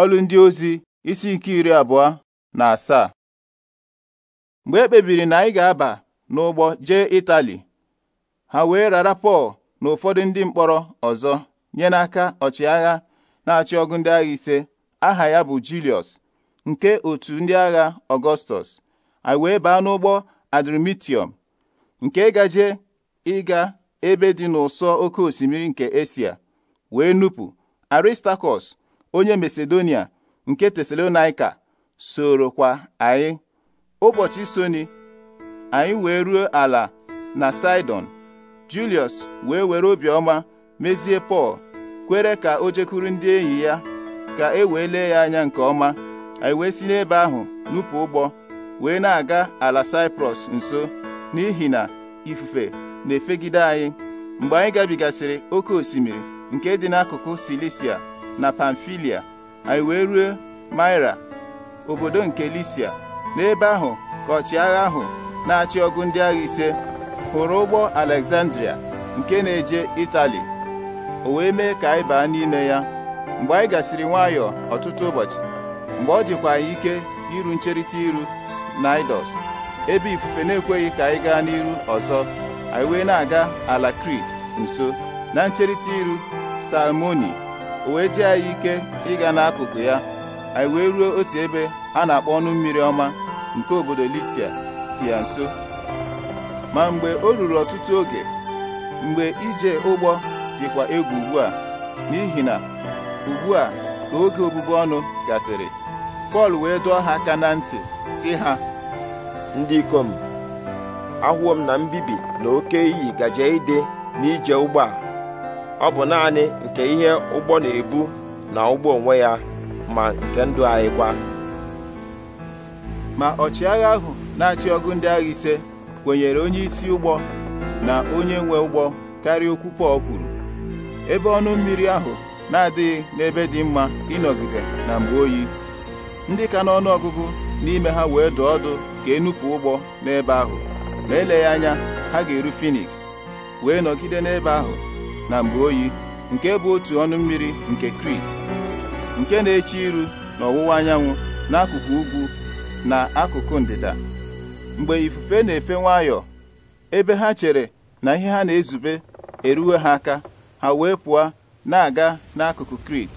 ọlụ ndị ozi isi nke iri abụọ na asaa mgbe e kpebiri na anyị ga-aba n'ụgbọ jee Itali ha wee rara Pọl na ụfọdụ ndị mkpọrọ ọzọ nye n'aka ọchịagha na-achị ọgụ ndị agha ise aha ya bụ Julius nke otu ndị agha Ọgọstọs anyị wee baa n'ụgbọ Adrimitium nke gaje ịga ebe dị n'ụsọ oke osimiri nke Esia wee nupụ Aristakọs onye masedonia nke soro kwa anyị ụbọchị soni anyị wee ruo ala na sidon julius wee were obiọma mezie pọl kwere ka o jekwuru ndị enyi ya ka e wee lee ya anya nke ọma anyị wee si n'ebe ahụ nupụ ụgbọ wee na-aga ala Saịprọs nso n'ihi na ifufe na-efegide anyị mgbe anyị gabigasịrị oke osimiri nke dị n'akụkụ Silisia na pamfilia anyị e wee ruo maira obodo nke lisia n'ebe ahụ ka ọchịagha ahụ na-achị ọgụ ndị agha ise hụrụ ụgbọ alexandria nke na-eje itali o wee mee ka anyị baa n'ime ya mgbe anyị gasịrị nwayọọ ọtụtụ ụbọchị mgbe ọ jikwa anyị ike iru ncherịta iru naidos ebe ifufe na-ekweghị ka anyị gaa n'iru ọzọ anyị wee na-aga ala krit nso na ncherịta iru salmoni o wee anyị ike ịga n'akụkụ ya anyị wee ruo otu ebe a na-akpọ ọnụ mmiri ọma nke obodo Lisia dị ya nso ma mgbe o ruru ọtụtụ oge mgbe ije ụgbọ dịkwa egwu ugbu a n'ihi na ugbu a ka oge obubu ọnụ gasịrị Pọl wee dụọ ha aka na ntị si ha ndị ikom ahụọ m na mbibi na oke iyi gaje ide n'ije ụgbọ a ọ bụ naanị nke ihe ụgbọ na-ebu na ụgbọ onwe ya ma nke ndụ anyị kwa ma ọchịagha ahụ na-achị ọgụ ndị agha ise kwenyere onye isi ụgbọ na onye nwe ụgbọ karịa okwu Pọl kwuru ebe ọnụ mmiri ahụ na-adịghị n'ebe dị mma ịnọgide na mgbe oyi ndị ka n'ọnụ ọgụgụ n'ime ha wee dụ ọdụ ka enupụ ụgbọ n'ebe ahụ ma eleghị anya ha ga-eru Finiks wee nọgide n'ebe ahụ na mgbe oyi nke bụ otu ọnụ mmiri nke krit nke na-eche iru na ọwụwa anyanwụ n'akụkụ ugwu na akụkụ ndịda mgbe ifufe na-efe nwayọọ ebe ha chere na ihe ha na-ezube eruwe ha aka ha wee pụọ na-aga n'akụkụ krit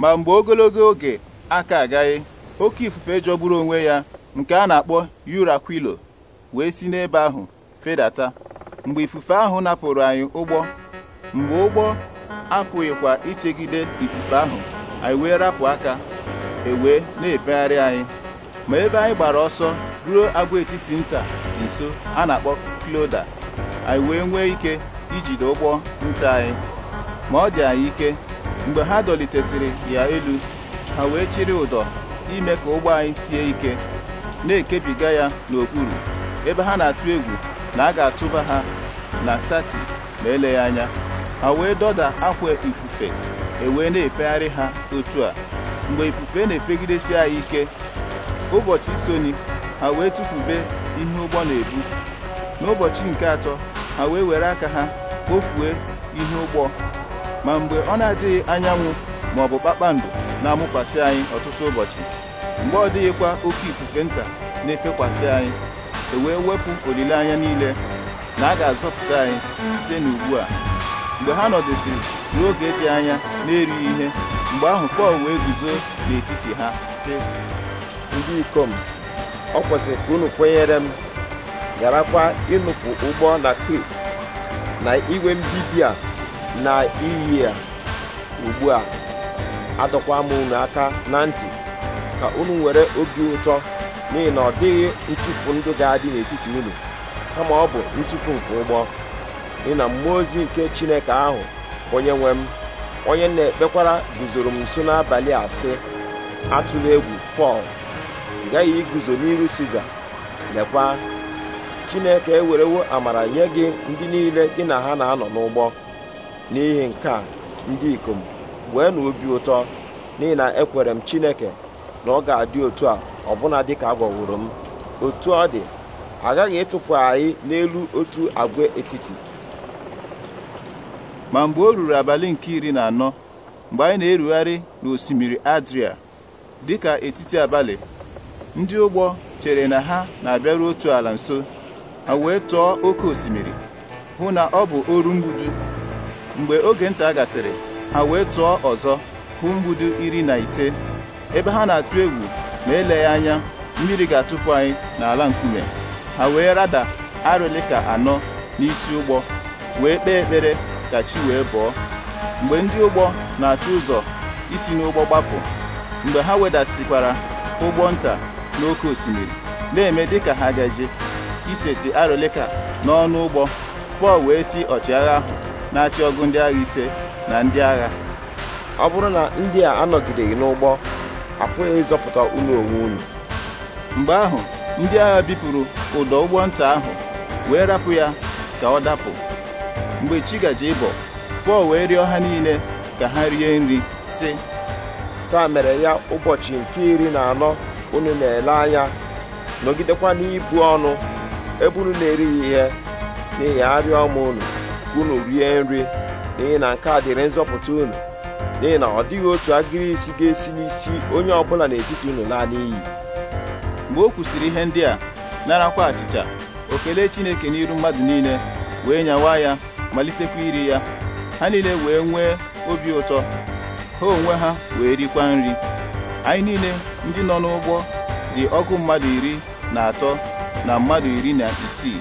ma mgbe ogologo oge aka agaghị oke ifufe jọgburu onwe ya nke a na-akpọ yurakwilo wee si n'ebe ahụ fedata mgbe ifufe ahụ napụrụ anyị ụgbọ mgbe ụgbọ apụghịkwa ichegide ifufe ahụ anyị wee rapụ aka ewee na-efegharị anyị ma ebe anyị gbara ọsọ ruo agwaetiti nta nso a na-akpọ Kloda anyị wee nwee ike ijide ụgbọ nta anyị ma ọ dị anyị ike mgbe ha dọlitesịrị ya elu ha wee chịrị ụdọ ime ka ụgbọ anyị sie ike na-ekebiga ya n'okpuru ebe ha na-atụ egwu na a ga-atụba ha na Satis ma eleghị anya ha wee dọda akwa ifufe ewee na-efegharị ha otu a mgbe ifufe na-efegidesi anyị ike ụbọchị isoni ha wee tụfube ihe ụgbọ na-ebu n'ụbọchị nke atọ ha wee were aka ha kpofue ihe ụgbọ ma mgbe ọ na-adịghị anyanwụ ma ọ bụ kpakpando na-amụkwasị anyị ọtụtụ ụbọchị mgbe ọ dịghịkwa oke ifufe nta na-efekwasị anyị e wee wepụ olileanya niile na a ga-azọpụta anyị site n'ugbu a mgbe ha nọdụsịrị n'oge dị anya na-erighị ihe mgbe ahụ Pọl wee guzo n'etiti ha si ndị ikom ọ kwesịrị ka unu kwenyere m garakwa ịnụpụ ụgbọ na Krit na iwe mbibi a na iyi a ugbu a adọkwa m unu aka na ntị ka unu nwere obi ụtọ n'ihi na ọ dịghị ntụpụ ndụ ga-adị n'etiti unu kama ọ bụ ntụpụ nke ụgbọ n'ihi na mmụọ ozi nke chineke ahụ onye nwe m onye na-ekpekwara guzoro m nso n'abalị a sị atụla egwu pọl gaghị iguzo n'iru siza lekwa chineke ewerewo amara nye gị ndị niile gị na ha na-anọ n'ụgbọ n'ihi nke a ndị ikom wee na obi ụtọ n'ihi na ekwere m chineke na ọ ga-adị otu a ọbụna dịka agwọworo m otu ọ dị agaghị ịtụpụ anyị n'elu otu agwa etiti ma mgbe o ruru abalị nke iri na anọ mgbe anyị na-erugharị n'osimiri Adria dịka etiti abalị ndị ụgbọ chere na ha na-abịaru otu ala nso ha wee tụọ oke osimiri hụ na ọ bụ oru mgbudu mgbe oge nta gasịrị ha wee tụọ ọzọ hụ mgbudu iri na ise ebe ha na-atụ egwu ma eleghị anya mmiri ga-atụpụ anyị n'ala nkume ha wee rada arịlịka anọ n'isi ụgbọ wee kpee ekpere ka chi wee bọọ mgbe ndị ụgbọ na achụ ụzọ isi n'ụgbọ gbapụ mgbe ha wedasịkwara ụgbọ nta n'oké osimiri na-eme dịka ha gaje iseti arịlịka n'ọnụ ụgbọ Pọl wee si ọchịagha ahụ na-achị ọgụ ndị agha ise na ndị agha ọ bụrụ na ndị a anọgideghị n'ụgbọ apụghị ịzọpụta ụlọ onwe unu mgbe ahụ ndị agha bipụrụ ụdọ ụgbọ nta ahụ wee rapụ ya ka ọ dapụ mgbe chi gaje ịbọ pọl wee rịọ ha niile ka ha rie nri sị taa mere ya ụbọchị nke iri na anọ unu na-ele anya nọgidekwa n'ibu ọnụ ebe unu na-erighị ihe n'ihi arịọ m unu unu rie nri n'ihi na nke a dịrị nzọpụta unu n'ihi na ọ dịghị otu agịrị isi ga-esi n'isi onye ọbụla n'etiti unu laa n'iyi mgbe o kwusịrị ihe ndị a narakwa achịcha okele Chineke n'iru mmadụ niile wee nyawa ya malitekwa iri ya ha niile wee nwee obi ụtọ ha onwe ha wee rikwa nri anyị niile ndị nọ n'ụgbọ dị ọkụ mmadụ iri na atọ na mmadụ iri na isii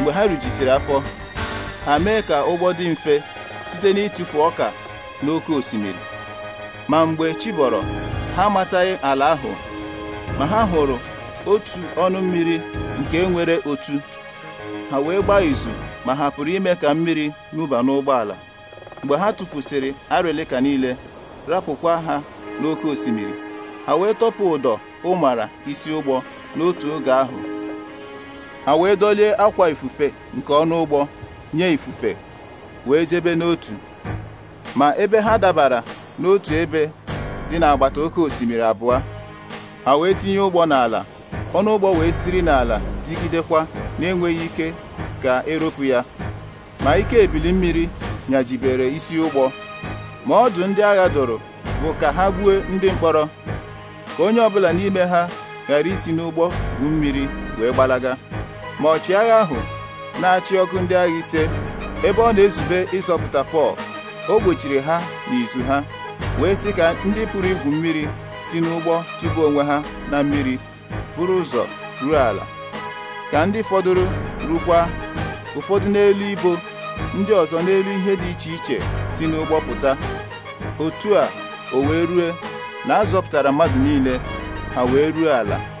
mgbe ha rijisiri afọ ha mee ka ụgbọ dị mfe site n'ịtụfu ọka n'oke osimiri ma mgbe chibọrọ ha amataghị ala ahụ ma ha hụrụ otu ọnụ mmiri nke nwere otu ha wee gbaa izu ma ha pụrụ ime ka mmiri nụba n'ụgbọala mgbe ha tụpụsịrị arịlịka niile rapụkwa ha n'oké osimiri ha wee tọpụ ụdọ ụmara isi ụgbọ n'otu oge ahụ ha wee dolie akwa ifufe nke ọnụ ụgbọ nye ifufe wee jebe n'otu ma ebe ha dabara n'otu ebe dị n'agbata oké osimiri abụọ ha wee tinye ụgbọ n'ala ọnụ ụgbọ wee siri n'ala digidekwa na-enweghị ike ka eropu ya ma ike ebili mmiri nyajibere isi ụgbọ ma ọdụ ndị agha dụrụ bụ ka ha gbuo ndị mkpọrọ ka onye ọbụla n'ime ha ghara isi n'ụgbọ bu mmiri wee gbalaga ma ọchịagha ahụ na-achị ọkụ ndị agha ise ebe ọ na-ezube ịzọpụta Pọl o gbochiri ha n'izu ha wee sị ka ndị pụrụ igwu mmiri si n'ụgbọ tụba onwe ha na mmiri buru ụzọ ruo ala ka ndị fọdụrụ rukwa ụfọdụ n'elu ibo ndị ọzọ n'elu ihe dị iche iche si n'ụgbọ pụta otu a o wee rue na a mmadụ niile ha wee ruo ala